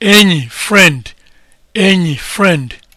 enyi friend enyi friend